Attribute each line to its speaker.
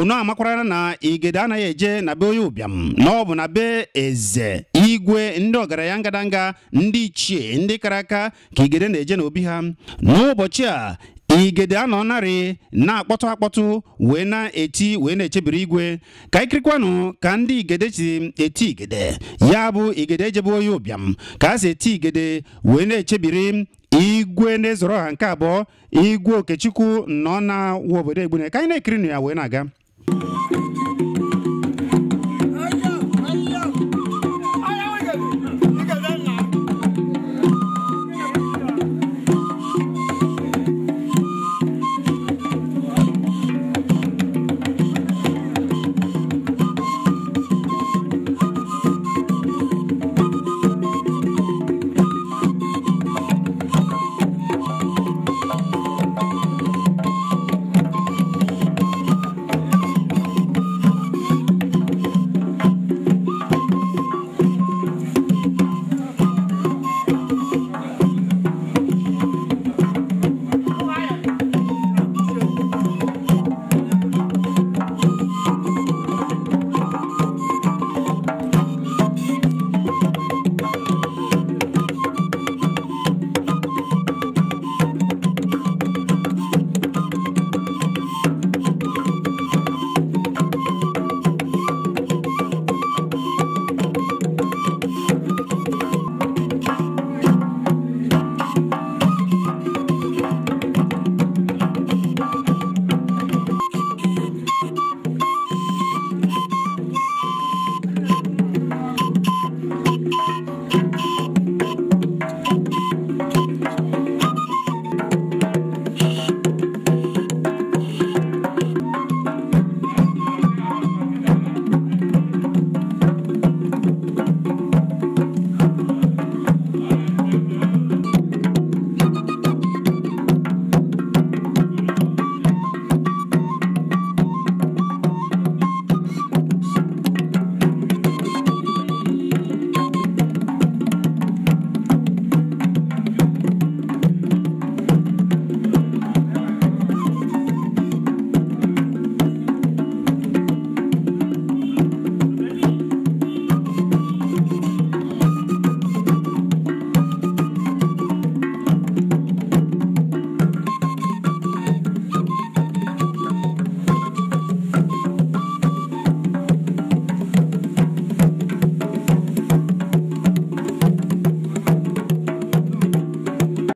Speaker 1: onu amakwarala na igede anaghị eje na be onye ụbịam na ọ bụ na be eze igwe ndị ọgaranya ngadanga ndị ichie ndị kara aka ka igede na-eje n'obi ha n'ụbọchị a igede anọ narị na-akpọtụ akpọtụ wee na-eti wee na-echebiri igwe ka ikirikwanụ ka ndị igede si eti igede ya bụ igede ejebe onye ụbịam ka a si eti igede wee na-echebiri igwe na ezorọ ha nke abụọ igwe okechukwu nọ na wa obodo egbune ka anyị na-ekirinụ ya wee na-aga Thank you.